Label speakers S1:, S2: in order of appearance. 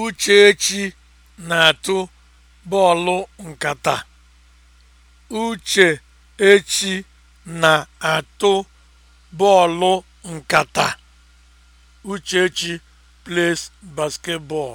S1: Uchechi na-atụ bọọlụ nkata. Uchechi na-atụ bọọlụ nkata. Uchechi plays basketball.